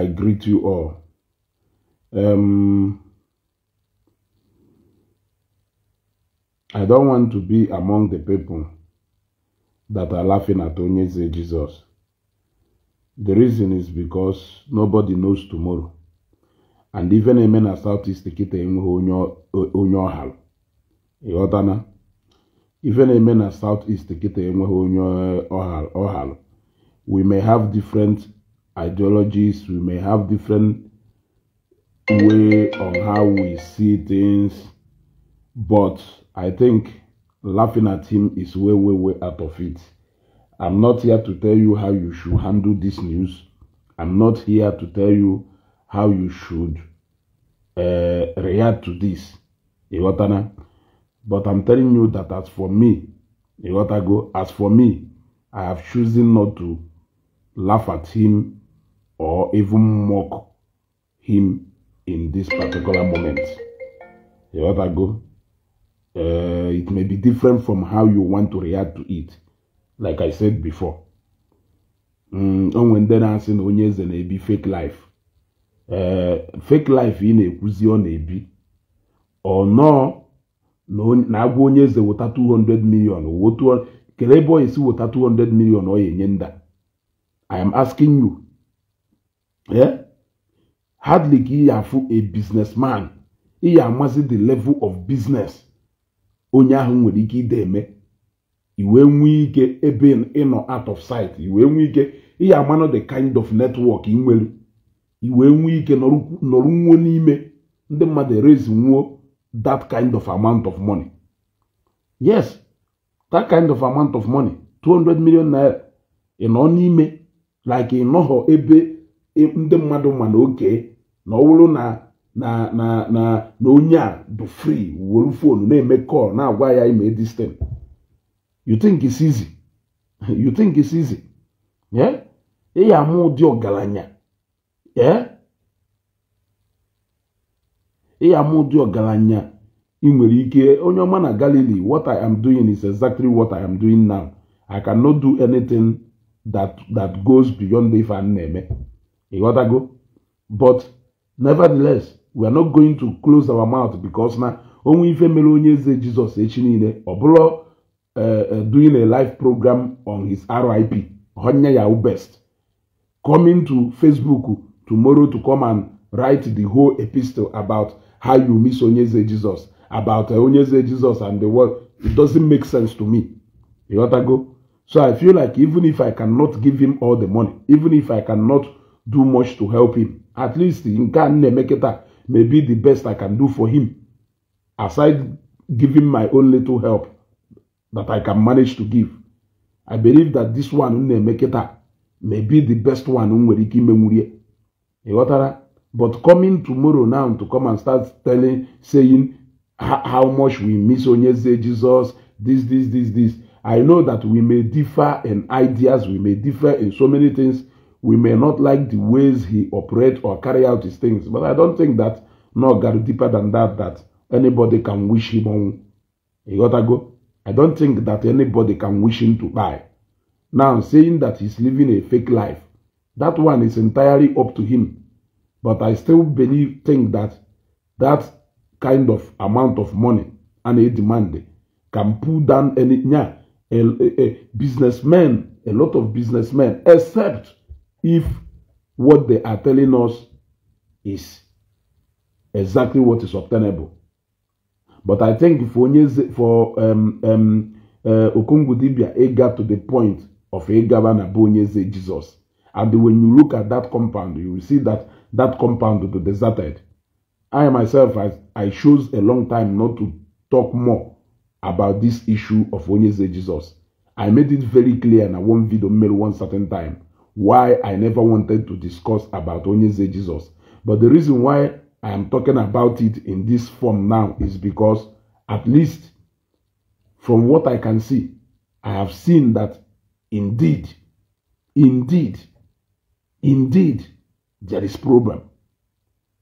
I greet you all. Um, I don't want to be among the people that are laughing at Onyeze Jesus. The reason is because nobody knows tomorrow. And even a man as Southeast Kite onye ọhara. Ịghọtana? Even a man as Southeast Kite enweghị onye ọhara. We may have different ideologies, we may have different way on how we see things, but I think laughing at him is way, way, way out of it. I'm not here to tell you how you should handle this news. I'm not here to tell you how you should uh, react to this. But I'm telling you that as for me, as for me, I have chosen not to laugh at him or even mock him in this particular moment. You let that go. Uh, it may be different from how you want to react to it, like I said before. Mm, and when they're asking Onyeze na be fake life. Uh, fake life in a na-ekwuzi ọ na-ebi no, no. nọọ na-agwa onye eze 200 million kedu ebe ọ esi two hundred million. 200 million ọ ya I am asking you hardly ka ya afụ a businessman ị ya amasị the level of business onye ahụ nwere ike ide eme Iwe nwee ike ebe ịnọ out of sight Iwe nwee ike ịya amano the kind of network ị nwere iwe nwee ike nọrọ nwuo n'ime ndị mmadụ raise nwuo that kind of amount of money yes that kind of amount of money 200 million naira ị nọ n'ime like ị nọghọ ebe ndị mmadụ ma na oge na na na na na na onye a bụ free wuru fonu na-eme kọl na-agwa ya ime distin you think it's easy you think it's easy amụ ụdị ọgaranya ị ya amụ ụdị ọgaranya ị nwere ike onye ọma na galili what I am doing is exactly what I am doing now I cannot do anything that that goes beyond if i na-eme You got to go? But nevertheless, we are not going to close our mouth because now onwe ife mere onye Jesus Jizọs echi niile ọ eh, eh, doing a live program on his RIP honye ya best coming to Facebook tomorrow to come and write the whole epistle about how you miss onye Jesus, about eh, onye Jesus and the world it doesn't make sense to me you got to go so I feel like even if I cannot give him all the money even if I cannot do much to help him. At least in a na-emeke may be the best I can do for him aside giving my own little help that I can manage to give. I believe that this one m na may be the best one m nwere ike imenwurie. Ị ghọtara? But coming tomorrow now to come and start telling saying how much we miss Onyeze Jesus this this this this I know that we may differ in ideas we may differ in so many things We may not like the ways he operates or carry out his things, but I don't think that, no, got deeper than that, that anybody can wish him on. You gotta go. I don't think that anybody can wish him to die. Now, saying that he's living a fake life, that one is entirely up to him. But I still believe, think that that kind of amount of money and a demand can pull down any yeah, a, a, a businessman, a lot of businessmen, except if what they are telling us is exactly what is obtainable. But I think for for um, um, uh, Okungudibia, it got to the point of a governor Bonyeze Jesus. And when you look at that compound, you will see that that compound is deserted. I myself, I, I chose a long time not to talk more about this issue of Onyeze Jesus. I made it very clear in a one video mail one certain time why I never wanted to discuss about Onyeze Jesus. But the reason why I am talking about it in this form now is because at least from what I can see, I have seen that indeed, indeed, indeed, there is problem.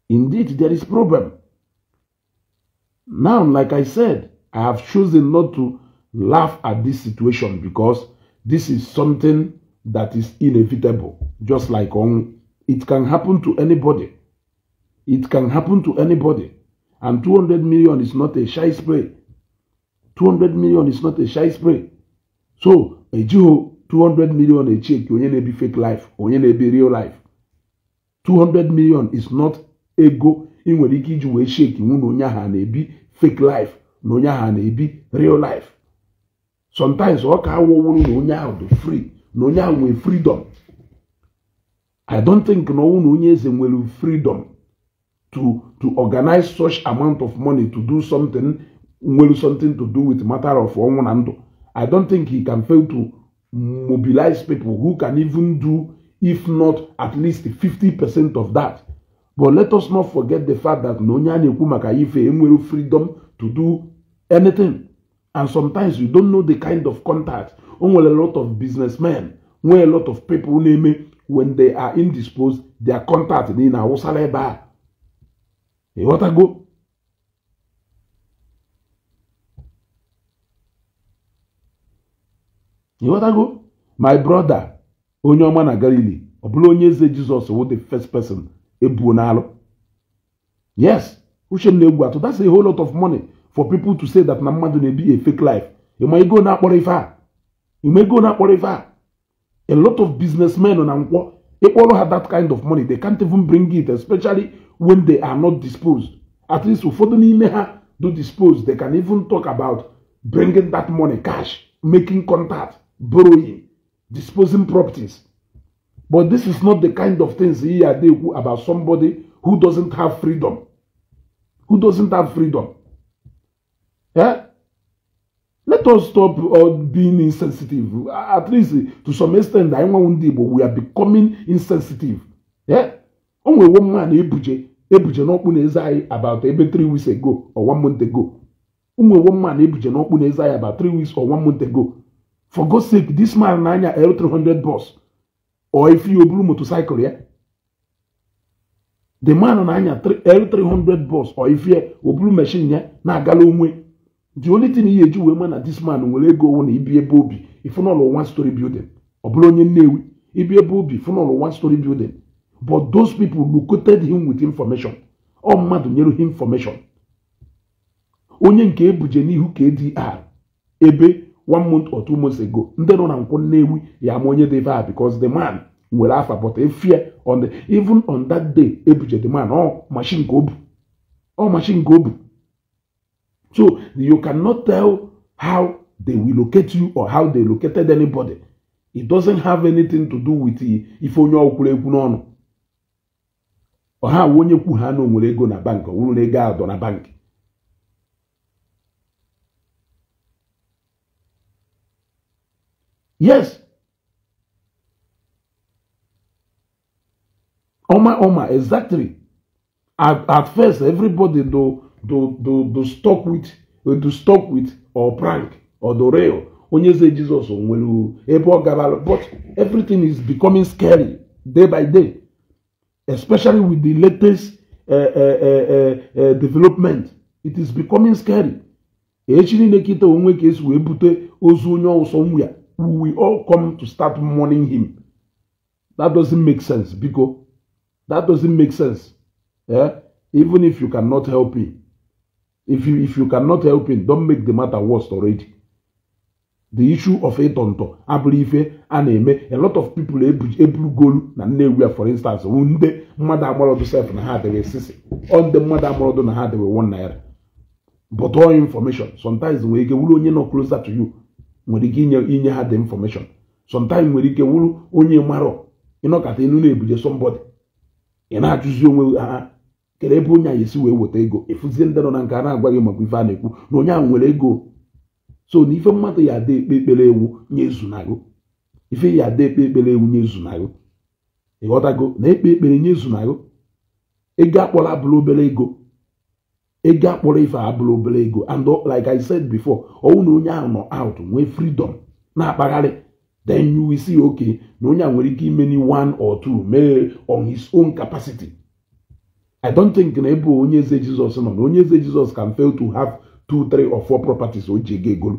Indeed, there is problem. Now, like I said, I have chosen not to laugh at this situation because this is something that is inevitable, just like on it can happen to anybody. It can happen to anybody. And 200 million is not a shy spray. 200 million is not a shy spray. So, a Jew, 200 million a check, onye na fake life, onye na real life. 200 million is not ego ị nwere ike iji wee shake nwụ onye ahụ na fake life na onye ahụ na real life. Sometimes ọ ka onye ahụ dị free na onye a nwee freedom i don't think na ọnwụ na onye eze nwere freedom to to organize such amount of money to do something nwere something to do with matter of ọnwụ na ndụ i don't think he can fail to mobilize people who can even do if not at least 50 percent of that but let us not forget the fact that na onye a na-ekwu maka ife enwere freedom to do anything And sometimes you don't know the kind of contact. Only a lot of businessmen, where a lot of people name when they are indisposed, their contact in Awusaleba. You want to go? You what I go? My brother, onye na Galilee, ọ Jesus was the first person ebuo n'alụ. Yes, Uche na-egwu atụ, that's a whole lot of money. for people to say that Namadu mmadụ a fake life you may go now ife You may go now akporo a lot of businessmen na they all have that kind of money they can't even bring it especially when they are not disposed at least ụfọdụ n'ime ha do dispose they can even talk about bringing that money cash making contact borrowing disposing properties but this is not the kind of things here about somebody who doesn't have freedom who doesn't have freedom Eh? Let us stop uh, being insensitive. At least uh, to some extent, I want Igbo, we are becoming insensitive. Yeah? Only one man, Ebuje, Ebuje n'ọkpụ na-eze anyị about ebe 3 weeks ago or 1 month ago. Only one man, Ebuje about weeks or month ago. For God's sake, this man n'anya L300 bus or if you blue motorcycle, yeah? The man n'anya L300 bus or if you blue machine, yeah? Na-agala onwe. the only thing ihe eji wee ma na this man nwere ego owu na ibi ebe obi ifunọlụ one story building ọ bụrụ onye nnewi ibi ebe obi ifunọlụ one story building but those people located him with information ọ mmadụ nyere ha information onye nke ebuje n'ihu KDR ebe one month or two months ago ndị nọ na nkwụ nnewi ya ama onye diva a because the man nwere afa but efie on even on that day ebuje the man ọ machine ka o bu ọ machine ka o bu So you cannot tell how they will locate you or how they located anybody. It doesn't have anything to do with If onye ọkwụrụ ekwu n'ọnụ. ọha awa onye kwu ha na onwere ego na bankị ọ na ego adọ na bankị yes ọma ọma exactly at, at first everybody though do do do stock with eh, do stock with or prank or doreo onye ze jizọs nwere ebe ọ gara but everything is becoming scary day by day especially with the latest uh, uh, uh, development it is becoming scary echi niile kịta onwe ka esi wee bute ozu onye ọsọ nwa ya we all come to start mourning him that doesn't make sense biko that doesn't make sense Yeah, even if you cannot help him If you, if you cannot help it, don't make the matter worse already. The issue of ịtọntọ abụrụ ife a na-eme a lot of people eburugolu na Nnewi a for instance ndị mmadụ agbọrọdụ sef na ha adịghị sisi ọ ndị mmadụ agbọrọdụ na ha adịghị one naira but all information sometimes nwere ike wuru onye nọ closer to you nwere ike inye inye ha the information sometimes nwere ike wuru onye marọ ịnọkọta enu na-ebuje somebody ị na-ajụzi onwe ha kere ebe onye a esi wee weta ego efuzie ndị nọ na nke a na-agwa gị maka ife a na-ekwu na onye ahụ nwere ego so na ife mmadụ ya ada ekpe ekpere ewu nye ezunago ife ya ada ekpe ekpere ewu nye ezunago ịghọtago na ekpe ekpere nye ezunago ego akpọrọ abụrụ obere ego ego akpọrọ ife abụrụ obere ego and like i said before ọwụ na onye ahụ nọ out nwee freedom na-akpagharị then you will see okay na onye a nwere ike ime ni one or two mee on his own capacity I don't think na ebe onye eze Jizọs nọ na onye eze Jizọs can fail to have two three or four properties o ji ego egolu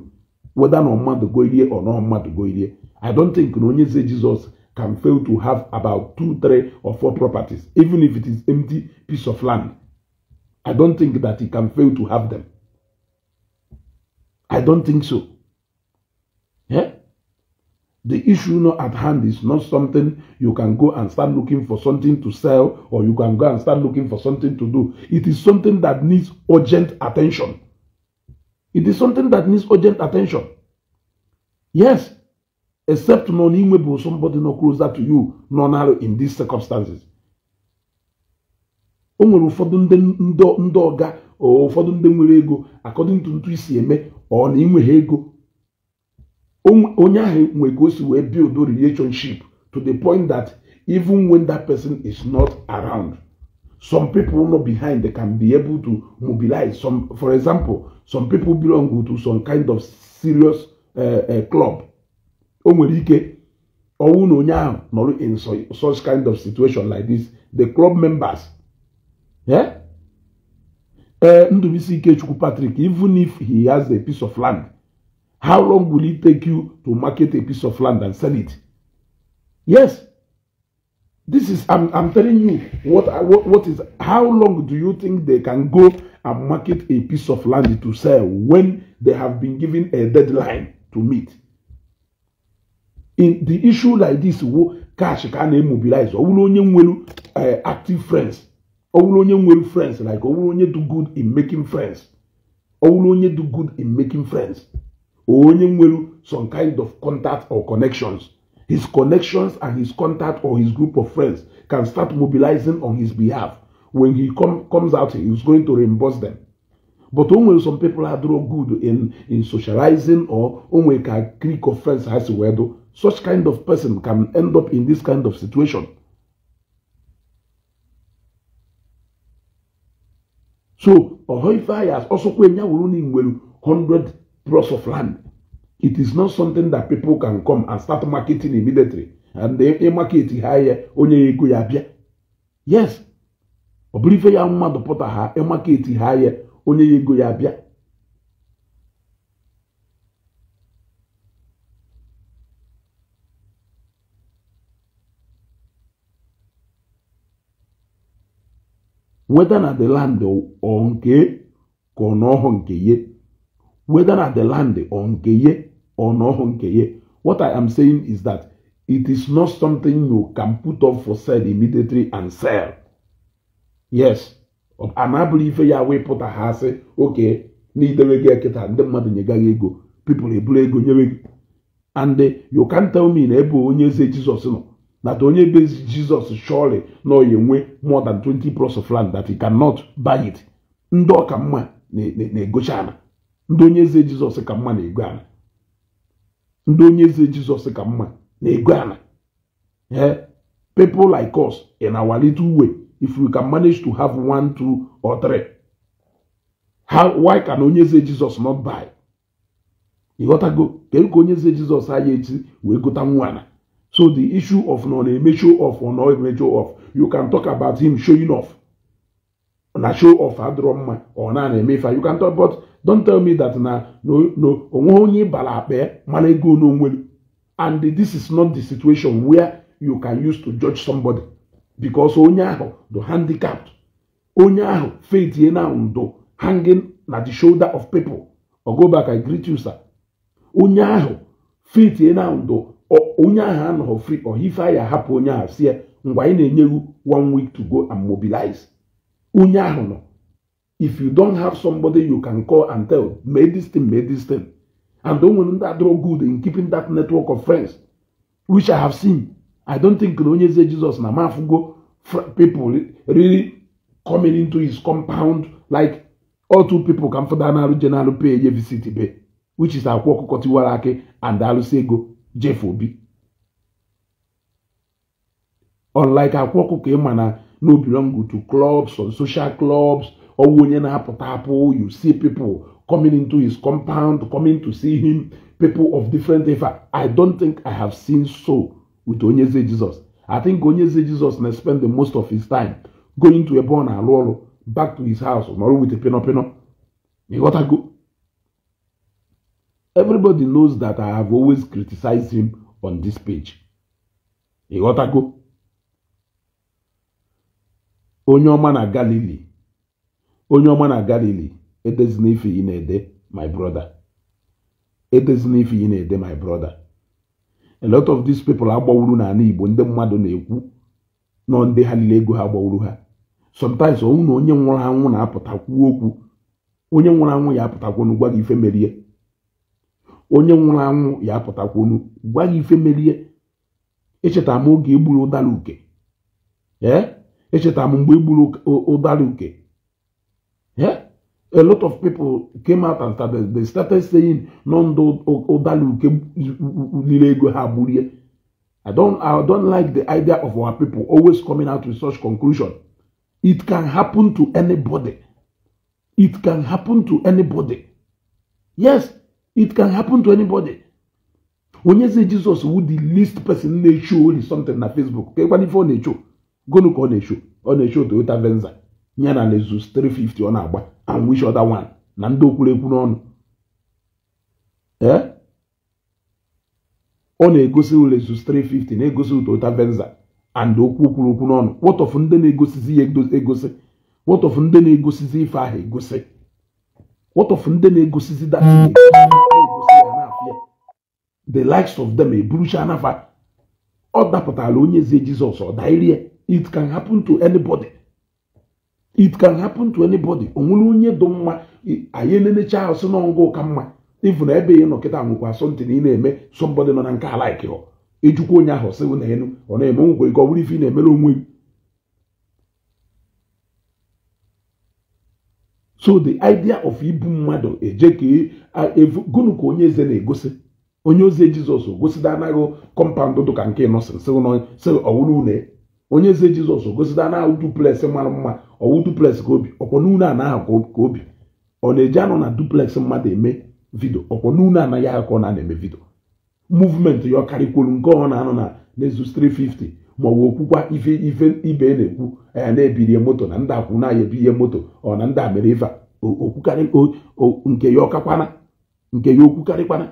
whether na mmadụ go irie or na mmadụ go irie I don't think na onye eze Jizọs can fail to have about two three or four properties even if it is empty piece of land I don't think that he can fail to have them I don't think so yeah? The issue not at hand is not something you can go and start looking for something to sell or you can go and start looking for something to do. It is something that needs urgent attention. It is something that needs urgent attention. Yes, except non-imable somebody not closer to you, non in these circumstances. o nwere ụfọdụ ndị ndị ọga ụfọdụ ndị nwere ego akọdịntụ ntu isi eme ọ na ịnweghị ego onye we go ka build the relationship to the point that even when that person is not around some people not behind they can be able to mobilize some for example some people belong to some kind of serious uh, uh, club o nwere or ọnwụ in such kind of situation like this the club members yeah. Uh, eh, ndụbisi ikechukwu patrick even if he has a piece of land How long will it take you to market a piece of land and sell it? Yes. This is, I'm, I'm telling you, what, what, what is, how long do you think they can go and market a piece of land to sell when they have been given a deadline to meet? In the issue like this, cash can na-emobilize ọ onye nwere eh, active friends ọ onye nwere friends like ọ onye do good in making friends ọ onye do good in making friends onye nwere some kind of contact or connections his connections and his contact or his group of friends can start mobilizing on his behalf when he come comes out he's going to reimburse them but only some people are draw good in in socializing or only a clique of friends has a do such kind of person can end up in this kind of situation so ọhọ ife anyị 100 plots of land. It is not something that people can come and start marketing immediately. And if they market higher, onye ego ya bịa. Yes. Ọ bụrụ ife ya mmadụ pụta ha, market higher, onye ego ya bịa. Whether na the land ọ nke ka ọ ọhụ nke ye whether na the land or nkeye or noho nkeye what i am saying is that it is not something you can put up for sale immediately and sell yes anabụrụ ife ya wee pụta ha asị oke na idewe gị ekịta ndị mmadụ nye ego pipụl eburu ego nyere gị and uh, you can tell me na ebe onye eze jizọs nọ that onye be jizọs surely na oyi enwe more than 20 plus of land that he cannot buy it ndị ọka mma na-egocha ana. ndị onye eze jizọs ka mma na-ego ala ndị onye eze jizọs ka mma na-ego ala ee like us in our little way if we can manage to have one two or three how why can onye eze jizọs not buy ịghọtago kedu ka onye eze jizọs anya echi wee gota nwa ala so the issue of nọ na-eme show off or not eme show off you can talk about him showing off na show off adịrọ mma ọ na na-eme ife you can talk about don tell me that na onweghị onye ịbara akpa e, mana ego n'onwere and this is not the situation where you can use to judge somebody because onye ahụ do handicapped onye ahụ faithie na ndụ hanging na the shoulder of people ogo go back I greet you sir onye ahụ faithie na ndụ onye ahụ anọghị free or ya ahapụ onye ahụ sie mgbe anyị na-enye one week to go and mobilize onye ahụ nọ if you don't have somebody you can call and tell, make this thing, make this thing. And don't want that draw good in keeping that network of friends, which I have seen. I don't think when you say Jesus Namafugo people really coming into his compound like all two people come for Danaru General Pay VCT Bay, which is Akwoko Kotiwarake and Alusego Jeff Obi. Unlike Akwoko Kemana, no belong to clubs or social clubs ọwụ onye na you see people coming into his compound coming to see him people of different ifa i don't think i have seen so with onyeze jesus i think onyeze jesus na spend the most of his time going to ebe o back to his house or with a pinopino go. everybody knows that i have always criticized him on this page ịghọtago onye ọma na Galilee. onye ọma na galili edezina ife ị na-ede my brother edezina ife ị na-ede my brother a lot of these people agbawuru n'ala igbo ndị mmadụ na-ekwu nọ ndị ha niile ego ha gbawuru ha sometimes ọnwụ na onye nwụrụ anwụ na-apụtakwu okwu onye nwụrụ anwụ ya apụtakwonu gwa gị ife merie onye nwụrụ anwụ ya apụtakwonu gwa gị ife merie echetara m oge egburu ụdara uke ee echetara m mgbe egburu ụdara uke Yeah? A lot of people came out and started, they started saying, Nondo Odalu I don't, I don't like the idea of our people always coming out with such conclusion. It can happen to anybody. It can happen to anybody. Yes, it can happen to anybody. When you say Jesus would the least person na show something on Facebook, okay, when if show, go look on a show, on a show to Venza. ya na lezus 350 ọ na-agba and which other one na ndị okwurekwu n'ọnụ ee eh? ọ na-egosi lezus 350 na-egosi utota venza and okwu kwuru okwu n'ọnụ of ndị na-egosizi ya egosi of ndị na-egosizi ife ahụ egosi wọtọf ndị na-egosizi ya the likes of them eburucha anafa ọ dapụtara onye eze jizọs ọ dairie it can happen to anybody. it can happen to anybody onwere onye dị mma anyị elenecha ahụ sị na ọngụ ka mma ịfụ na ebe ihe nọ kịta nwekwa asọmpi na ị na-eme sọmbọdị nọ na nke alaik ijukwa onye ahụ sị na enu ọ na-eme nwekwa ike ọ bụrụ ife ị na-emere onwe gị so the idea of ibu mmadụ eje ka e, gụnụ ka onye eze na-egosi onye ozi jizọs gosida anaghị kọmpaụnd dụka nke nọsịn sị ọwụrụ une onye eze jizọs gosita na duplex mara mma ọwụ duplex ka obi ọkwọ na anaghị ka obi ọ na-eji anụ na duplex mmadụ eme vidio ọkwọ n'unu anaghị aha ka ọ na-eme vidio muvmenti ya ọ karịkwuru nke ọ na-anọ na n'ezu 350 ma ọ okwukwa ife ife ibe e na-ekwu ya na-ebirie moto na ndị akwụ na ebi ihe moto ọ na ndị mere ife nke ya ọkakwana nke ya okwukarịkwana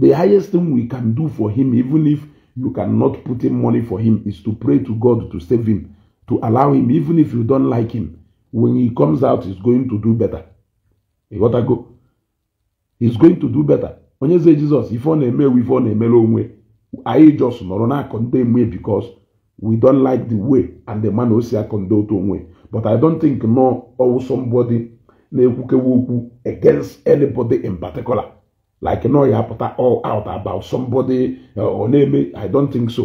the highest thing we can do for him even if you cannot put in money for him is to pray to God to save him, to allow him, even if you don't like him. When he comes out, he's going to do better. You gotta go. He's going to do better. Onye say Jesus, if ọ na-emewe ife ọ na-emere onwe, anyị just nọrọ na condemn me because we don't like the way and the man o say I condemn to onwe. But I don't think no or somebody na against anybody in particular like no, ọ ya-apụta all out oh, about ah, somebody ọ uh, na-eme i don't think so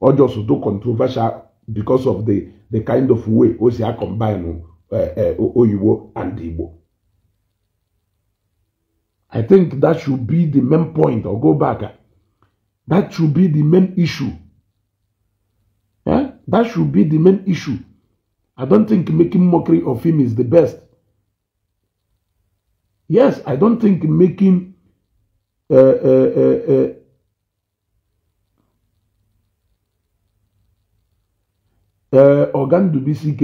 Or just do controversial because of the the kind of way o si acombine uh, uh, oyibo and igbo i think that should be the main point or go back that should be the main issue Yeah, that should be the main issue i don't think making mockery of him is the best Yes, I don't think making uh, uh, uh, uh, uh Ogandubisi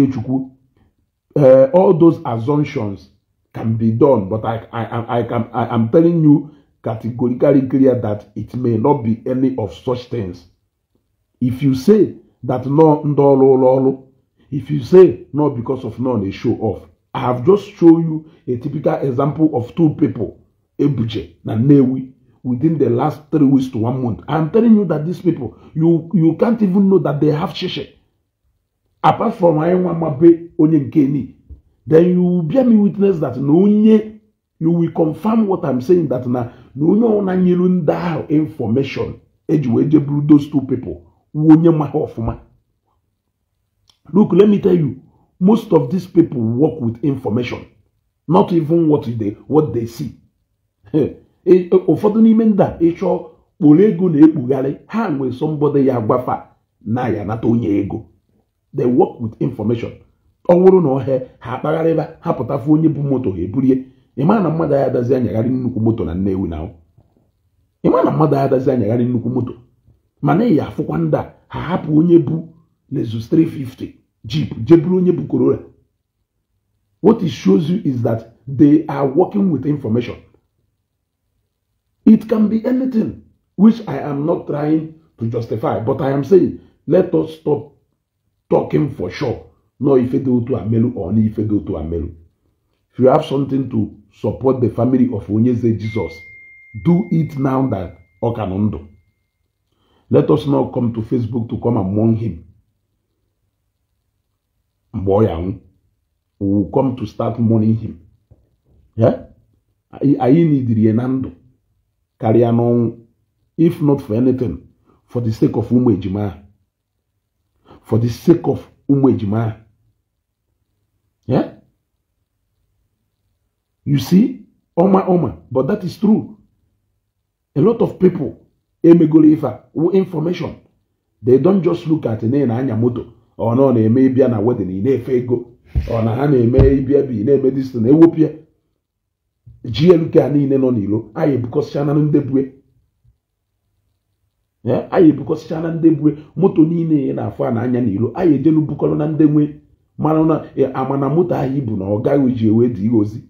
uh, all those assumptions can be done, but I, I, I, can, I am telling you categorically clear that it may not be any of such things. If you say that no if you say no because of none, they show off. I have just shown you a typical example of two people, Ebuje and Newi, within the last three weeks to one month. I'm telling you that these people, you, you can't even know that they have sheshe. Apart from Ayewamabe Onyenkeni, then you will bear me witness that Nonye, you will confirm what I'm saying that na Nonye Onanyilu Ndao information, Ejuweje those two people, Wonye Maha Ofuma. Look, let me tell you, Most of these people work with information, not even what they, what they see. E, e, ụfọdụ n'ime ndị a ịchọọ kpụrụ ego na-ekpugharị ha nwee somebody ya gwafa na ya nata onye ego they work with information ọ wụrụ na ọhịa ha akpagharịba ha pụtafu onye bụ moto ha eburie ịma na mmadụ anya dazi anyagharị nnukwu moto na ewu na ịma na mmadụ anya dazi anyagharị nnukwu moto mana ịya afụkwa ndị a ha hapụ onye bụ lezu 350 Jeep, what it shows you is that they are working with information. It can be anything, which I am not trying to justify, but I am saying, let us stop talking for sure. No, if you go to Amelu or if you go to Amelu. If you have something to support the family of Onyeze Jesus, do it now that Okanondo. Let us now come to Facebook to come among him mgbe ọ will come to start mourning him Yeah, I need na ndụ karịa if not for anything for the sake of Umwejima. for the sake of Umwejima. Yeah, you see ọma ọma but that is true a lot of people emegoro ife information they don't just look at na anya moto ọ na-eme ịbịa na wedịn ị na-efe ego ọ na ha na-eme ịbịa bi na-eme distin ewepịa glk a niile nọ n'ilo anyị ebukọsịchana ndebue anyị ebukọsịcha na ndebue moto niile ị na-afụ a na-anya n'ilo anyị ejelu bukọrọ na ndị nwe mana na e, amana moto ahụ ibu na ọ gaghị ji ewe dị ozi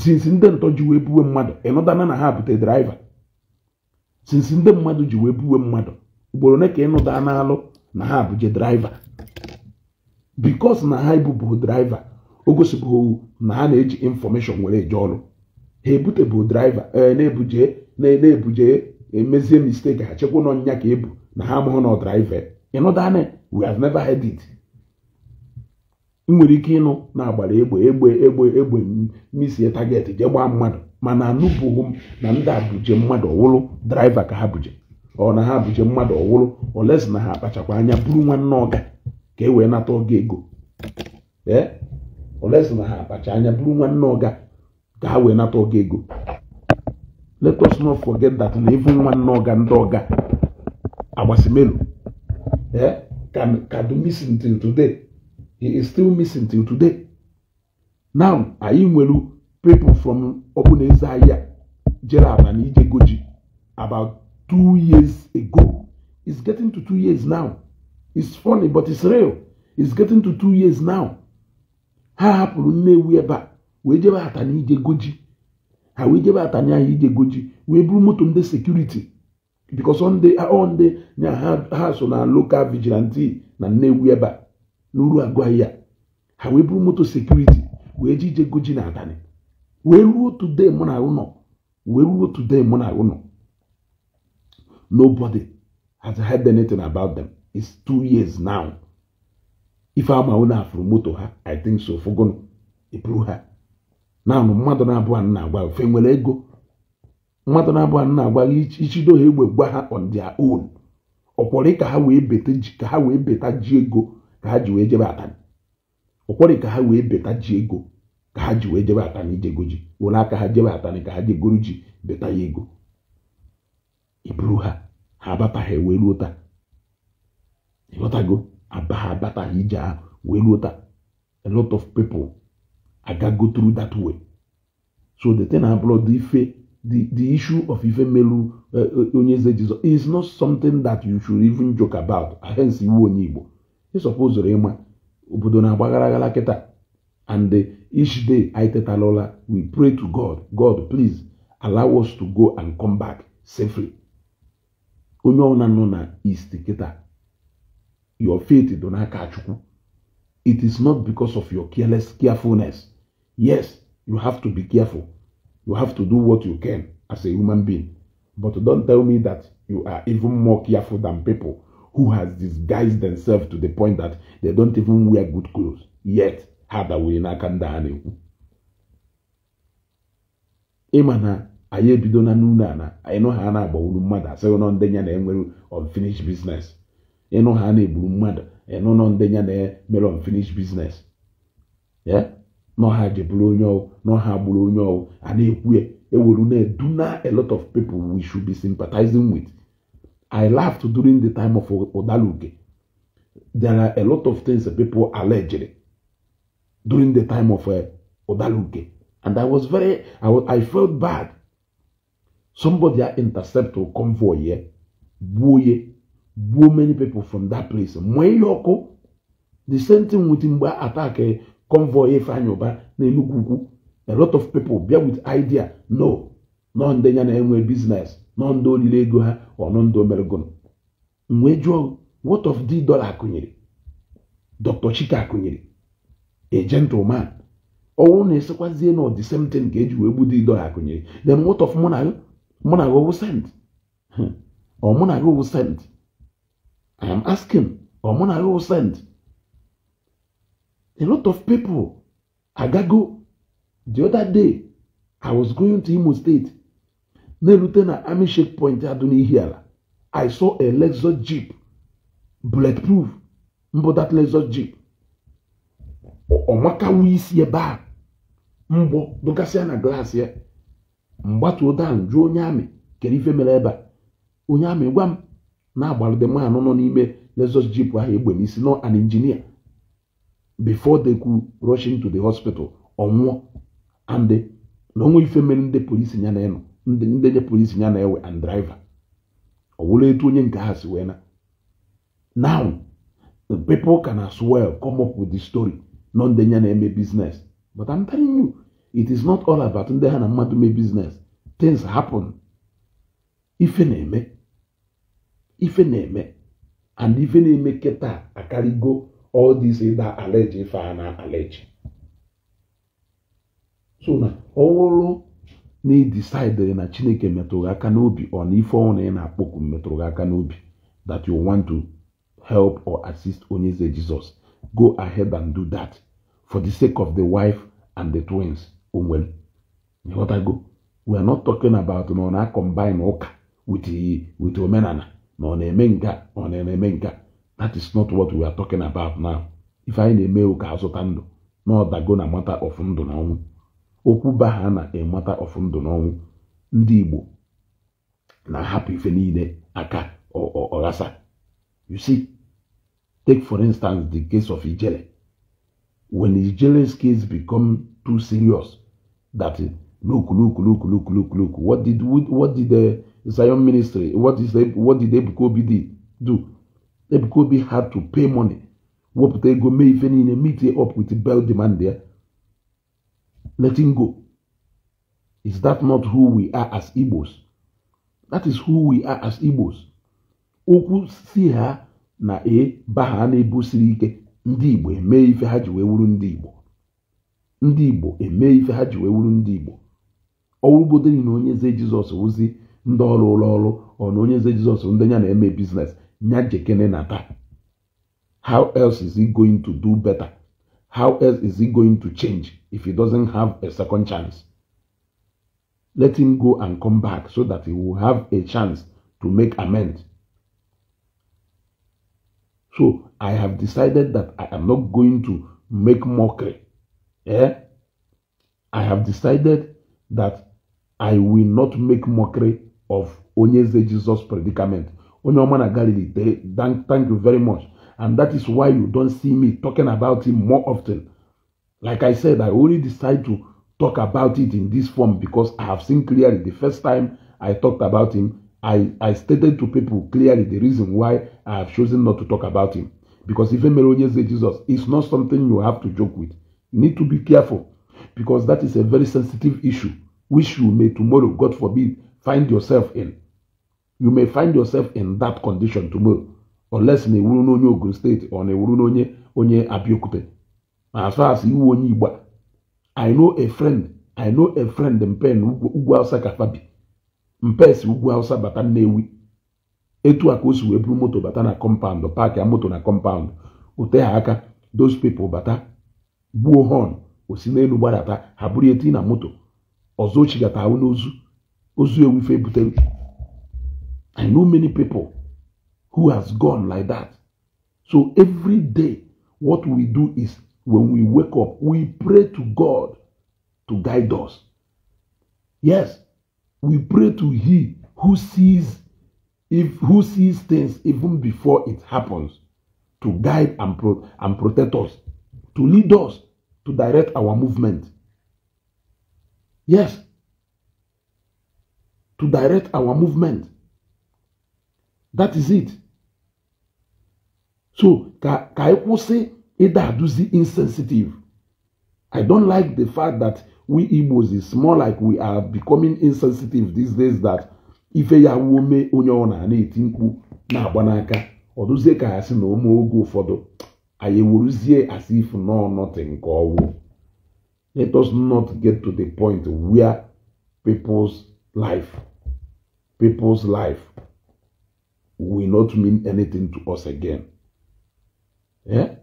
sinsi ndị ntọ ji wee buwe mmadụ ịnụdana na ha bute draiva sinsi ndị mmadụ ji wee buwe mmadụ ugboro ne ka ịnụda na alụ na ha abụghị draiva bikos na ha ebubu draiva o gosibụghị na ha na-eji infọmeshọn were eje ọrụ ha ebutebụ draiva e, na-ebuje na-ebuje emezie misteki ha chekwa nọ nya ka ebu na ha amụghị na draiva ịnụdane we have never had it ị nwere ike ịnụ na-agbara egbe egbe egbe egbe misie target jee gbaa mmadụ mana anụbụghị m na ndị a mmadụ ọwụrụ draiva ka ha buje ọ na ha abụje mmadụ ọwụrụ olesi na ha akpachakwa anya bụrụ nwanne ọga ka e wee nata ọga ego ee olesi na ha akpacha anya bụrụ nwanne ọga ka ha wee nata ọga ego let us not forget that na even nwanne ọga ndị ọga agbasimelu ee kadu missing till today he is still missing till today now anyị nwere people from ọbụna eze ahịa jere aba na ije goji about two years ago. It's getting to two years now. It's funny, but it's real. It's getting to two years now. ha hapụrụ Nnewi ebe a wee jebe atanya ije goji ha wee jebe atanya ahụ ije goji wee buru moto ndị sekuriti because ọ uh, ndị nya ha so na lokal vigilante na Nnewi ebe a n'uru agwaghị ya ha wee moto sekuriti wee ji goji na abalị wee ruo today mụ na ahụ ruo today Nobody has heard anything about them. It's two years now. If I'm a from moto I think so. Fogono, eburu ha. Now mmadụ na-abụ a na-agwa ofe nwere ego. Mmadụ na-abụ a na-agwa ichido ha egbe gwa ha on their own. Ọkwọrị ka ha wee beta ji ka ha wee beta ji ego ka ha ji wee jebe atani Ọkwọrị ka ha wee beta ji ego ka ha ji wee jebe abalị ijego ji. Were aka ha jebe atani ka ha jegoro ji beta ya ego. ibruha habata he abataghị wee ruo taa ịghọtago aba a lot of people I got go through that way so the thing abroad the ife the, the issue of ife melu uh, uh, onye is not something that you should even joke about hence iwu onye igbo ịsọpụzụrụ ịma obodo na-agbagharaghara kịta and each day anyị tetalola we pray to god god please allow us to go and come back safely onye ọbụla nọ na east kịta your faith dị n'aka chukwu it is not because of your careless carefulness yes you have to be careful you have to do what you can as a human being but don't tell me that you are even more careful than people who has disguised themselves to the point that they don't even wear good clothes yet ha dawere n'aka ndị a na-ekwu ịma na anyị ebido na n'ụlọ ala anyị nọ ha na-agbawuru mmadụ asịghị nọ ndenye na enwere unfinished business ịnụ ha na-egburu mmadụ ịnụ nọ ndenye na mere unfinished business ya nọ ha jeburu onye ọwụ nọ ha gburu onye ọwụ a na-ekwu ya ewere na a lot of people we should be sympathizing with I laughed during the time of Odaluke. There are a lot of things that people alleged during the time of uh, eh, Odaluke. And I was very, I, I felt bad Somebody intercept a convoy here, gbuo ya, gbuo many people from that place. Mụọ ihe ọkụ, the same thing with mgbe attack convoy Ifeanyi Uba n'Enugu Ukwu. A lot of people bịa with idea no, nọ ndị ya na-enwe business, nọ ndị olili ego ha, ọnụ ndị omeregon. Mgbe jụọ what of the dollar akụnyere? Dr. Chika akụnyere, a gentleman. Ọnwụ na-esikwazie na the same thing ka eji wee gbudo dollar akụnyere. Then what of mụ na mụ na gị owu sent ọ hmm. na gị owu sent i am asking ọ mụ na gị owu sent a lot of people agago the other day i was going to imo state na-erute na army shake point na n'ihi ala i saw a lexus jeep bulletproof mbụ that lexus jeep ọ makawo isi ebe a mbụ dụgasịa na glass ya mgbatuo dan jụọ onye amị kere ife mere ebe a onye amị gwa m na-agbalide mmanụ nọ n'ime lexus jip ahụ egbe n'isi nọ an injinia before they could rush to the hospital ọnwụọ and na onwe ife mere ndị polisi ya na ndị nye polisi ya na ewe and driver ọ wụrụ etu onye nke ha si wee na now the people can as well come up with the story nọ ndị ya na-eme business but I'm telling you it is not all about ndị ha na mmadụ mee business things happen If a name, if a name, and if ife na-eme kịta akarịgo all this ịda aleji ife a na aleji so now, all na ị decide na chineke metụrụ gị aka n'obi ọ na ife ọnwụ na ị na-akpọku metụrụ gị aka n'obi that you want to help or assist onye eze jizọs go ahead and do that for the sake of the wife and the twins onwere ịghọtago we are not talking about na ọ na-akọmbine ụka with omenala na ọ na-eme nga ọ na-eme that is not what we are talking about now If anyị na-eme ụka azụta ndụ na ọdago na mata ọfụ ndụ na ọnwụ okwu ba ha na emata ọfụ ndụ na ọnwụ ndị Igbo na-ahapụ ife niile aka ọghasa you see take for instance the case of Ijele when Ijele's case become too serious that look, look, look, look, look, look. What did what did the Zion ministry? What is the, what did Ebukobi do? Ebukobi had to pay money. What they go may even in a meeting up with the bell demand there. Let him go. Is that not who we are as Igbos? That is who we are as Igbos. Oku see her na e ba ha na-ebusiri ike ndị Igbo emee ife ha ji wuru ndị Igbo ndị igbo emee ife ha ji wee wuru ndị igbo ọwụgodịrị na onye eze jizọs wụzi ndị ọrụ ụlọ ọrụ ọ na onye eze jizọs ndị ya na-eme biznes nya jekene na taa how else is he going to do better how else is he going to change if he doesn't have a second chance let him go and come back so that he will have a chance to make amends so i have decided that i am not going to make mockery eh, I have decided that I will not make mockery of Onyeze Jesus predicament. Onyomana Galilee, thank, thank you very much. And that is why you don't see me talking about him more often. Like I said, I only decide to talk about it in this form because I have seen clearly the first time I talked about him, I, I stated to people clearly the reason why I have chosen not to talk about him. Because even Melonius Jesus is not something you have to joke with. You need to be careful because that is a very sensitive issue which you may tomorrow, God forbid, find yourself in. You may find yourself in that condition tomorrow unless na ewuru n'onye Ogun State or na ewuru n'onye onye abiokute As far as iwu onye igba I know a friend, I know a friend mpe ugwu Hausa Kafabi. Mpe si ugwu Hausa bata Nnewi. Etu a ka o wee buru moto bata na compound paakị a moto na compound ote ha aka those people bata gbuo họn n'elu gbadata ha bụrụ eti na moto ọzọ ochigata ahụ n'ozu ozu ewufe i know many people who has gone like that so every day what we do is when we wake up we pray to god to guide us yes we pray to he who sees if who sees things even before it happens to guide and, pro and protect us to lead us, to direct our movement. Yes. To direct our movement. That is it. So, ka, ka e kwụsị ịda e aduzi insensitive. I don't like the fact that we Igbos is more like we are becoming insensitive these days that ife ya wuo mee onye ọ na-eti or na-agba n'aka ọ dụzie ka ha si na ụmụ oge anyị wuruzie as if no nothing ka let us not get to the point where people's life people's life will not mean anything to us again yeah?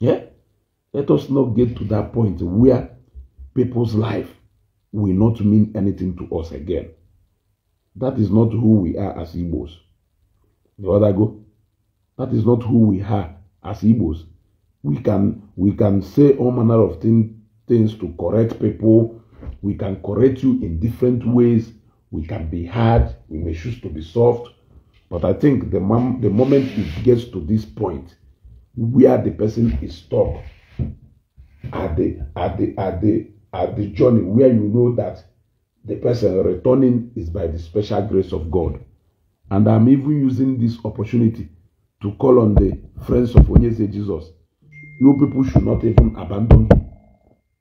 Yeah? let us not get to that point where people's life will not mean anything to us again that is not who we are as Igbos. The other go. That is not who we are as Igbos. We can we can say all manner of thing, things to correct people. We can correct you in different ways. We can be hard. We may choose to be soft. But I think the, mom, the moment it gets to this point, where the person is stuck at the at the at the at the journey where you know that the person returning is by the special grace of God. And I'm even using this opportunity to call on the friends of Onyeze Jesus. You people should not even abandon him.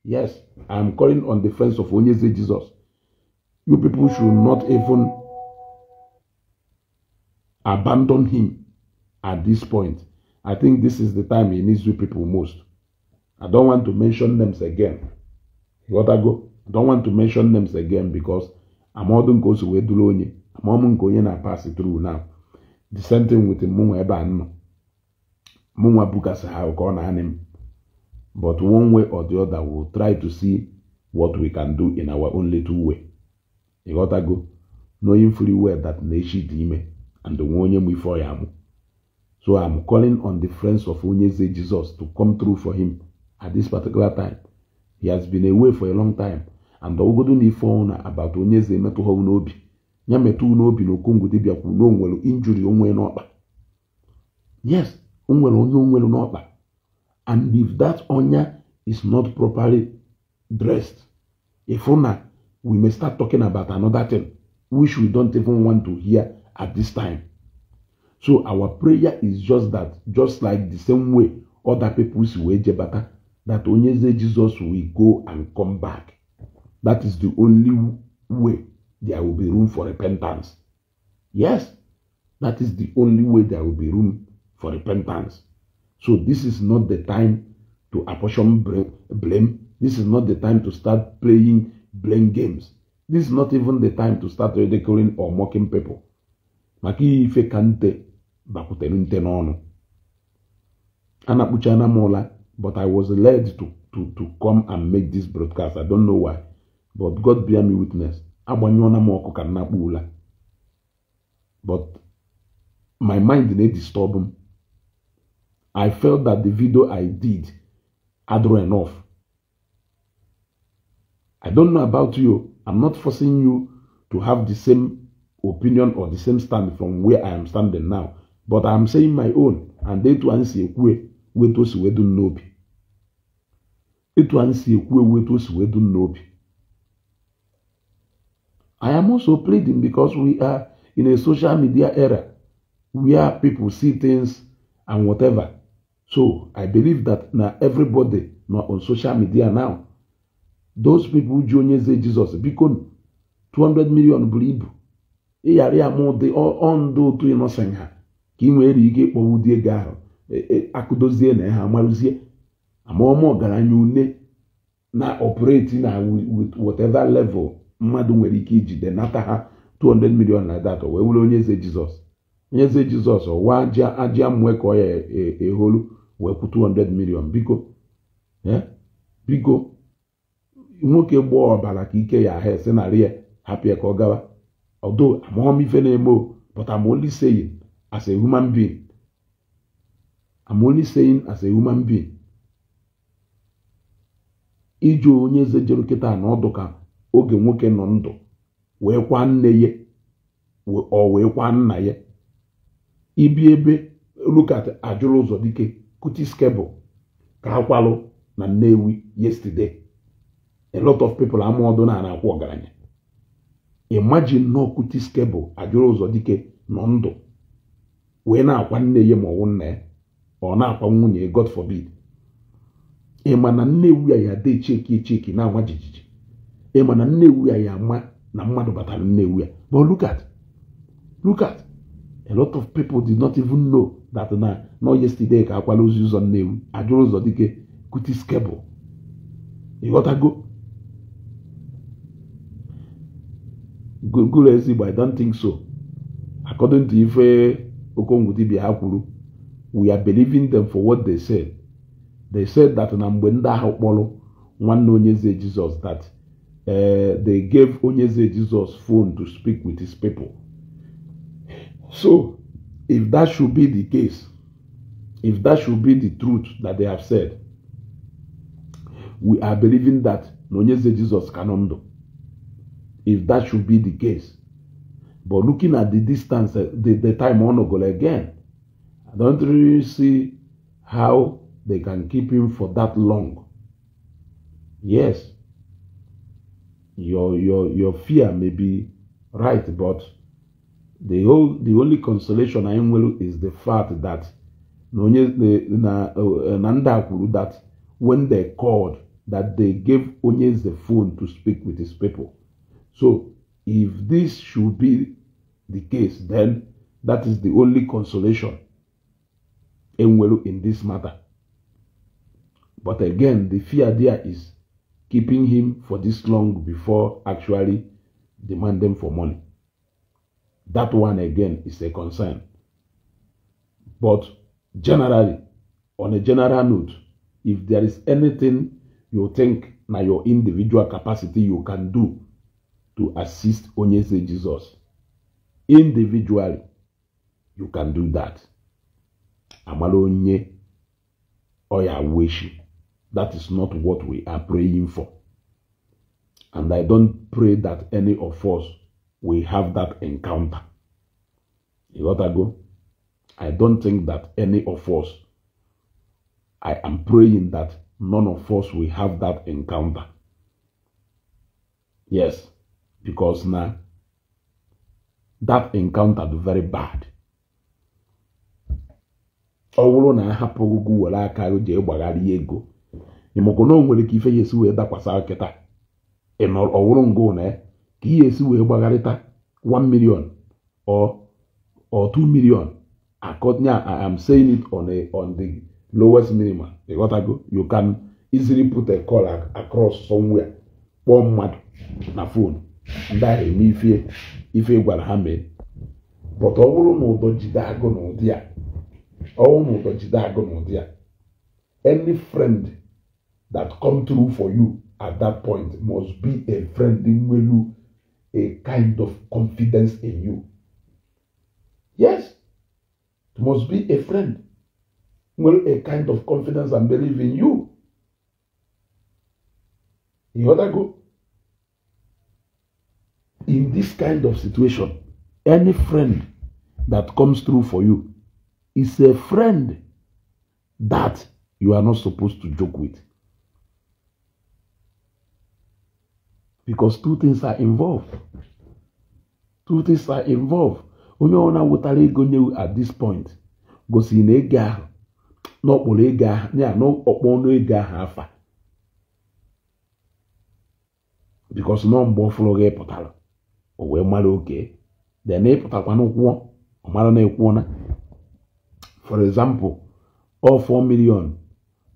Yes, I'm calling on the friends of Onyeze Jesus. You people should not even abandon him at this point. I think this is the time he needs you people most. I don't want to mention names again. You gotta go. don't want to mention names again because amọdụ nke o wee duru onye amọm nke onye na-apasị through now the same thing with mụnwa ebe a nọ mụnwa bukasi ha ah, ka ọ na-anị m but one way or the other will try to see what we can do in our only little way ịghọtago knowing fully well that na-echi dị ime and nwe onye m ife ya amụ so am calling on the friends of onye Onyeze Jesus to come through for him at this particular time he has been away for a long time andọwụgodo na ife ọnwụ na abata onye eze emetụ ha n'obi ya metụ n'obi na okongwu dibịa kwuru na onwere injuri onwe n'ọkpa yes onwere onye onwere n'ọkpa and if that onya is not properly dressed ịfụ na we may start talking about another thing which we don't even want to hear at this time so our prayer is just that just like the same way other people si wee jebata that onye eze jizọs will go and come back That is the only way there will be room for repentance. Yes, that is the only way there will be room for repentance. So this is not the time to apportion blame. This is not the time to start playing blame games. This is not even the time to start ridiculing or mocking people. maka ihe ife ka nte bakwutere but I was led to, to, to come and make this broadcast. I don't know why but god bear me witness agbanyụọna m ọkụ ka nna kpuola but my mind disturb him. I felt that the video i did had run enough i don't know about you i'm not forcing you to have the same opinion or the same stand from where i am standing now but i'm saying my own and etu anyị si ekwu wetu o si wedu n'obi etu anyị si ekwu wetu o si wedu n'obi I am also pleading because we are in a social media era where people see things and whatever. So I believe that now everybody not on social media now. Those people ji onye say jesus biko 200 million buru ibu ịghara ya ma ọ ndụ otu ịnọsen ha ka ị nwere ike ịkpọwu dị ego ahụ e, e, akụdozie na ha amaruzie amaọma ọgaranya une na operating na whatever level mmadụ nwere ike ijide nata ha 200 million na data wee were onye eze jizọs onye eze jizọs ọwa aja mmụọ ka ọ ya eholu e wee kwụ 200 biko eh, biko nwoke gbaa ọbara ka ike ya ahụ esi narị ya hapụ ka ọ gawa ọdụ amaghọm ife na-eme o but I'm only as human being I'm as human being ijụ onye eze jere kịta na ọdụ oge nwoke nọ ndụ wee kwa nne ya ọ wee kwa nna ya ibi ebe lukat ajụrụ ụzọ dike kutiskebụl ka ha kwalụ na nnewi yesterday a lot of people amụọdụ na na-akwụ ọgaranya imagine nọ kutiskebụl ajụrụ ụzọ dike nọ ndụ wee na-akwa nne ya ma ọwụ nna ya ọ na-akwa nwunye god forbid ị ma na nnewi ya ya dị cheki cheki na-ama jijiji ịma na nnewu ya ya ama na mmadụ batara nnewu ya but look at look at a lot of people did not even know that na nọ yesterday ka akwala ozi ụzọ nnewu ajụrụ ụzọ dike kutis kebụl ịghọtago gụrụ ezigbo i don't think so according to ife okongwu dibia ha kwuru we are believing them for what they said they said that na mgbe ndị ahụ kpọrọ nwanne onye eze jizọs that uh, they gave Onyeze Jesus phone to speak with his people. So, if that should be the case, if that should be the truth that they have said, we are believing that Nonyeze Jesus cannot do. If that should be the case. But looking at the distance, eh, the, the time on again, I don't really see how they can keep him for that long. Yes, your your your fear may be right, but the whole the only consolation I am will is the fact that Nanda eh, that when they called that they gave Onyes the phone to speak with his people. So if this should be the case, then that is the only consolation Enwelu in this matter. But again, the fear there is keeping him for this long before actually demanding for money. That one again is a concern. But generally, on a general note, if there is anything you think na your individual capacity you can do to assist Onyese Jesus, individually, you can do that. Amalo onye oya weshi. That is not what we are praying for. And I don't pray that any of us will have that encounter. You got to go? I don't think that any of us, I am praying that none of us will have that encounter. Yes, because now that encounter is very bad. ọ na ahapụghị gị were aka gị jee gbagharịa ego na o nwere ka ife ya esi wee dakwasa nkịta ọwụrụ ngụ na ya e, ka ihe esi wee gbagharịta 1 million or or 2 million akọnya I am saying it on a on the lowest minimum you can easily put a call across somewhere kpọọ mmadụ na fon ndị ahụ eme ife ife gwara ha mee but ọ bụrụ na ụdọ jide agụ na ụdị a na ụdọ jide agụ na ụdị a any friend that come through for you at that point must be a friend in you, a kind of confidence in you. Yes, it must be a friend. Well, a kind of confidence and belief in you. You other to go. In this kind of situation, any friend that comes through for you is a friend that you are not supposed to joke with. because two things are involved two things are involved onye ọ ọbụla wetara ego nye at this point gosiri na ego ahụ n'ọkpọrọ ego ahụ ya n'ọkpọ ọnụ ego ahụ afa because nọ mgbe ọfụrụ gị pụtara o wee mara oke de na ịpụtakwana kwụọ ọ mara na ekwuona for example ọ 4 million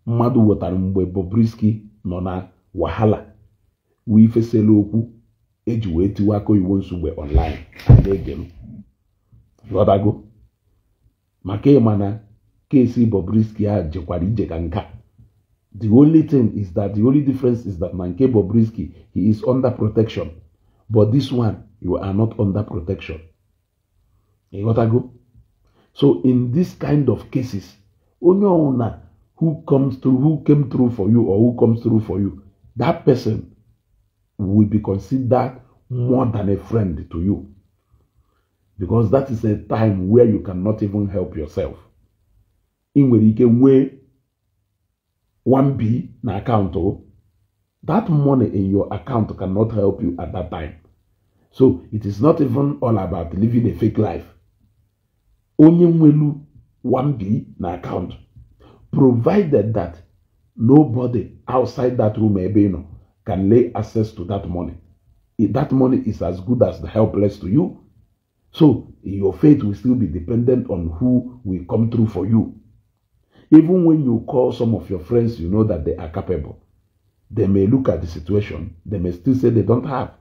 mmadụ wetara mgbe Bobrisky nọ na wahala wifesela okwu eji wee tiwe aka oyiwo nsogbe online na-ege m ghọtago maka ịma na kesi Bobrisky a jekwara ije ka nka the only thing is that the only difference is that na nke Bobrisky he is under protection but this one you are not under protection ịghọtago so in this kind of cases onye ọwụna who comes through who came through for you or who comes through for you that person will be considered more than a friend to you. Because that is a time where you cannot even help yourself. In where you can weigh 1B na account, oh. that money in your account cannot help you at that time. So it is not even all about living a fake life. Onye nwelu 1B na account, provided that nobody outside that room ebe you know, can lay access to that money. If that money is as good as the helpless to you. So your faith will still be dependent on who will come through for you. Even when you call some of your friends, you know that they are capable. They may look at the situation, they may still say they don't have.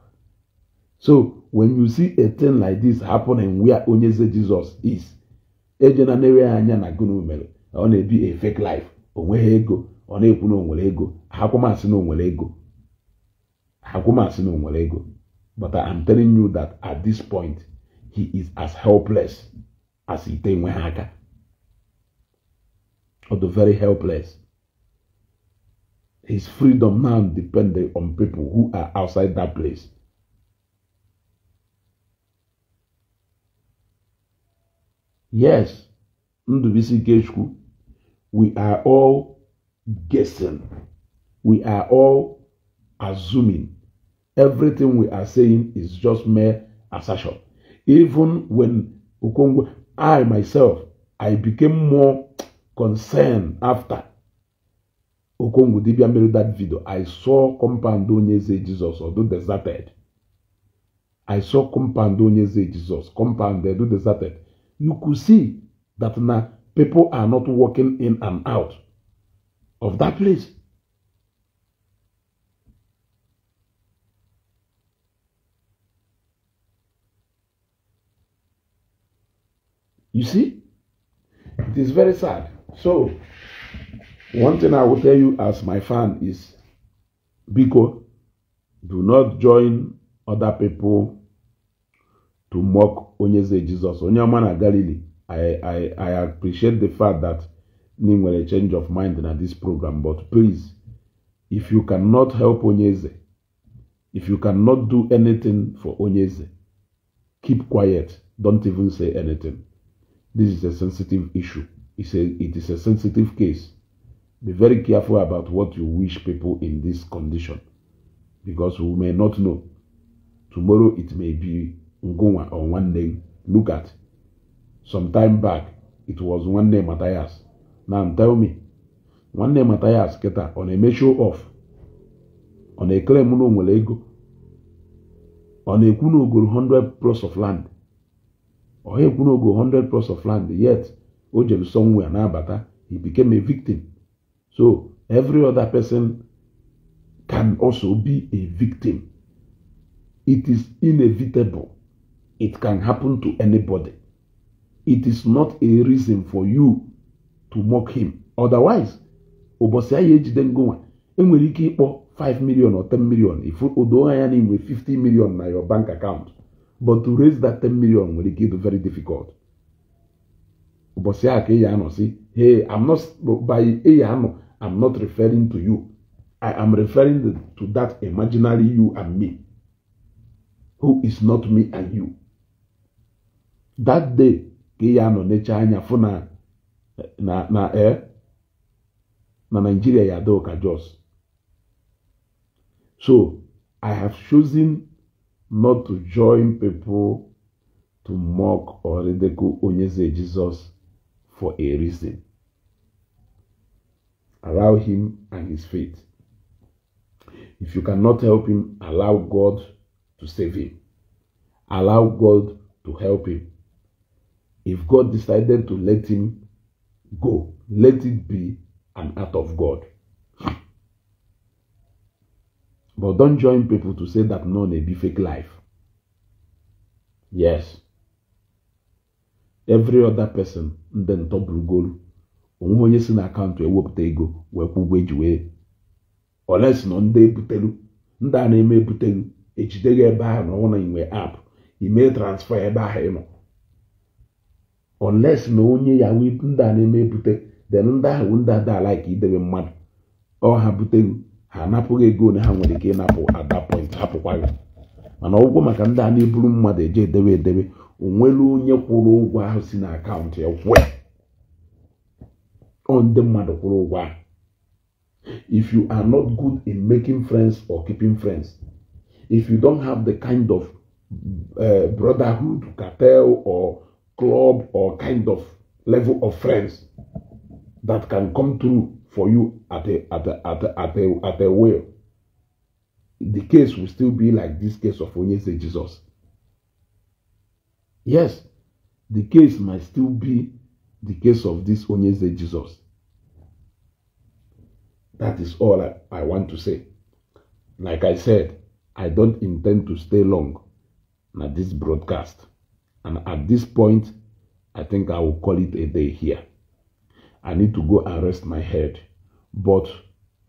So when you see a thing like this happening where Onyeze Jesus is, ejena na-enweghị a fake life onweghị ego ọ na-ekwu na onwere ego akwụmasị na ego but I am telling you that at this point, he is as helpless as Ite Nwehaka. Or the very helpless. His freedom now depends on people who are outside that place. Yes, Ndubisi Geshku, we are all guessing. We are all assuming Everything we are saying is just mere assertion. Even when Okongwe, I myself, I became more concerned after Okongwe Dibia made that video. I saw compound Onyeze Jesus, although deserted. I saw compound Onyeze Jesus, compound do deserted. You could see that now people are not walking in and out of that place. You see? It is very sad. So, one thing I will tell you as my fan is Biko, do not join other people to mock Onyeze Jesus. Onyaman Galilee, I, I, I appreciate the fact that Ning will change of mind in this program, but please, if you cannot help Onyeze, if you cannot do anything for Onyeze, keep quiet. Don't even say anything. This is a sensitive issue. It's a, it is a sensitive case. Be very careful about what you wish people in this condition because we may not know. Tomorrow it may be Ngoma or one name. Look at. Some time back, it was one name Matthias. Now tell me, one name Matthias Keta on a measure off, on a claim no on a kuno 100 plus of land could not go 100 plus of land yet o somewhere he became a victim so every other person can also be a victim it is inevitable it can happen to anybody it is not a reason for you to mock him otherwise ụbọchị den ejide ngonwa enwere ike 5 million or 10 million If odo anya na 50 million na your bank account but to raise that ten million nwere ike ịdụ very difficult ụbọchị a ka ị ya anọ si hey i'm not by ị anọ i'm not referring to you i am referring to that imaginary you and me who is not me and you that day ka ị ya anọ neche anya fụ na na na ee eh, na Nigeria ya adịghị ka Jos so i have chosen not to join people to mock or ridicule Onyeze Jesus for a reason. Allow him and his faith. If you cannot help him, allow God to save him. Allow God to help him. If God decided to let him go, let it be an act of God. But don't join people to say that no, they be fake life. Yes. Every other person ndị goolu onwe onye si na akaụntụ ewepụta ego wee kwụ ụgwọ eji wee oles nọ ndị ebutelu ndị a na-eme ebutelu ejide gị ebe ahụ na ọ na inwe app ime transfa ebe ahụ ịnọ oles na onye yahu ndị a na-eme ebute then ndị ahụ ndị ada like idebe mmadụ ọ ha butelu ha anapụghị ego ole ha nwere ike ịnapụ at that point hapụkwaghị mana ụgwọ maka ndị a na-eburu mmadụ eje edebe edebe onwere onye kwụrụ ụgwọ ahụ si na akaụntụ ya kwụọ ọ ndị mmadụ kwụrụ ụgwọ ahụ if you are not good in making friends or keeping friends if you don't have the kind of uh, brotherhood cartel or club or kind of level of friends that can come through for you at the at the at the at the, at the will. The case will still be like this case of Onyese Jesus. Yes, the case might still be the case of this Onyese Jesus. That is all I, I want to say. Like I said, I don't intend to stay long at this broadcast. And at this point, I think I will call it a day here. I need to go and rest my head. But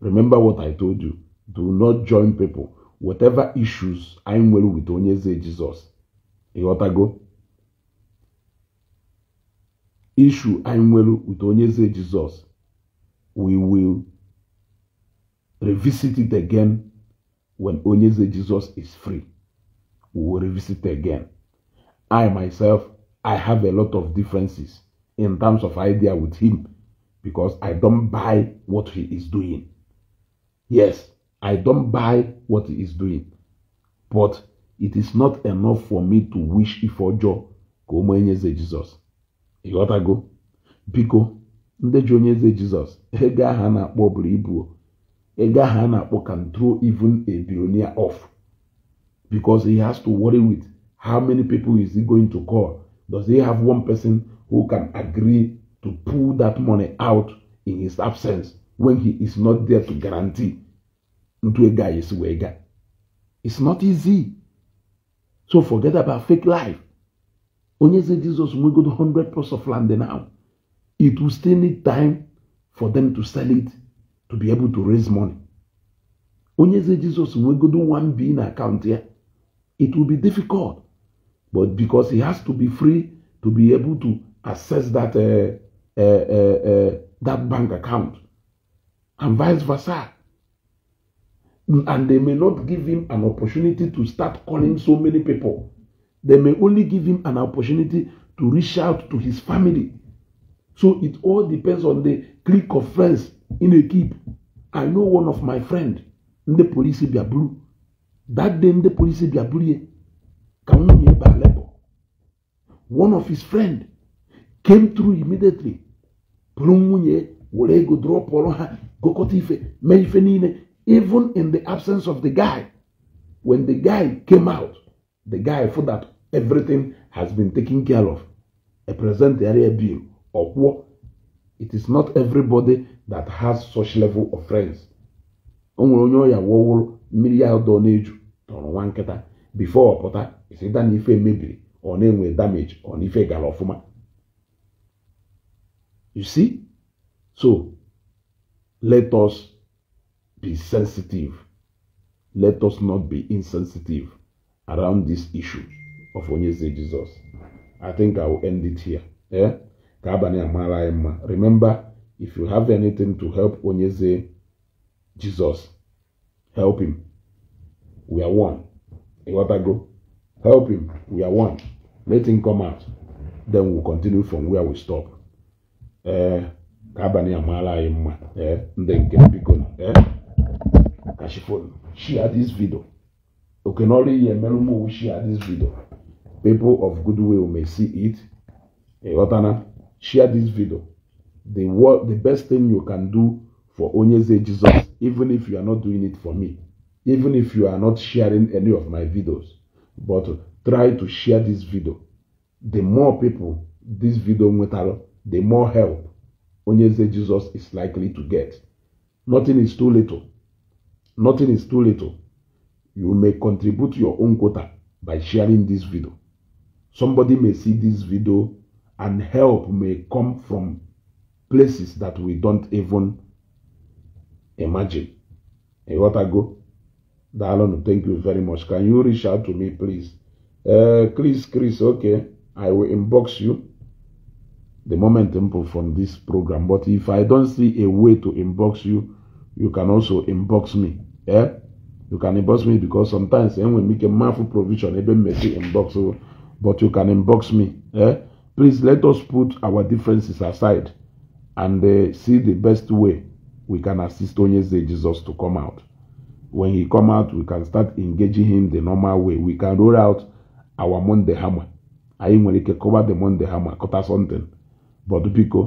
remember what I told you. Do not join people. Whatever issues I'm well with Onyeze Jesus. go? Issue I'm well with Onyeze Jesus. We will revisit it again when Onyeze Jesus is free. We will revisit it again. I myself, I have a lot of differences in terms of idea with him because I don't buy what he is doing. Yes, I don't buy what he is doing. But it is not enough for me to wish ife ọjọọ Go ụmụ onye eze Jizọs. Ịghọtago? Biko, ndị ji onye eze Jizọs, ego ahụ a na-akpọ a can throw even a billionaire off because he has to worry with how many people is he going to call? Does he have one person who can agree to pull that money out in his absence when he is not there to guarantee guy is Wega. It's not easy. So forget about fake life. Onyeze Jesus we to 100 plus of land now. It will still need time for them to sell it to be able to raise money. Onyeze Jesus we one bean account here. It will be difficult. But because he has to be free to be able to access that uh, uh, uh, that bank account, and vice versa. And they may not give him an opportunity to start calling so many people. They may only give him an opportunity to reach out to his family. So it all depends on the clique of friends in a keep. I know one of my friend, ndị polisi bịa buru. That day the police be buru ya one of his friend came through immediately bụrụ nwunye were ego dụrọpụrụ ha gụkọta ife mee ife niile even in the absence of the guy when the guy came out the guy for that everything has been taken care of a present area bill ọkwụọ it is not everybody that has such level of friends o nwere onye ọya wụọ wụrụ mmiri ya dọ na-eju tọrọ nwa nkịta bifo ọ pụta ịsịta na ife mebiri ọ na-enwe damage ọ na ife gara ọfụma You see? So, let us be sensitive. Let us not be insensitive around this issue of Onyeze Jesus. I think I will end it here. Yeah? Remember, if you have anything to help Onyeze Jesus, help him. We are one. go. Help him. We are one. Let him come out. Then we'll continue from where we stop ee eh, ka abalị amaala anyị mma ee eh, ndị nke biko ee eh, kashifon share this video Okay, okenọrụ ihe merụ m share this video people of goodwill may see it watana? share this video the what? the best thing you can do for onyeze jesus even if you are not doing it for me even if you are not sharing any of my videos but try to share this video the more people this video nwetara the more help Onyeze Jesus is likely to get. Hmm. Nothing is too little. Nothing is too little. You may contribute your own quota by sharing this video. Somebody may see this video and help may come from places that we don't even imagine. A what I go? Dalon, thank you very much. Can you reach out to me, please? Uh, Chris, Chris, okay. I will inbox you the momentum from this program. But if I don't see a way to inbox you, you can also inbox me. Yeah, You can inbox me because sometimes eh, when we make a mindful provision, even messy inbox, oh, but you can inbox me. Yeah, Please let us put our differences aside and uh, see the best way we can assist Onyeze Jesus to come out. When he come out, we can start engaging him the normal way. We can roll out our Monday hammer. I ain't going to cover the Monday hammer, cut something. but biko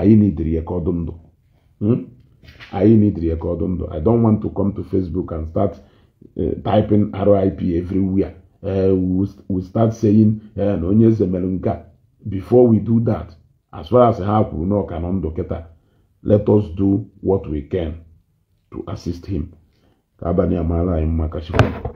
anyị n'idiri ya ka ọ dị ndụ anyị n'idiri ya ka ọ ndụ i don want to come to facebook and start uh, typing rip everywhere uh, we start saying eh, na onye eze mere nke a before we do that as far as ha kwuru na ọka nọ ndụ kịta let us do what we can to assist him ka abalị amaala anyị mma kachikwa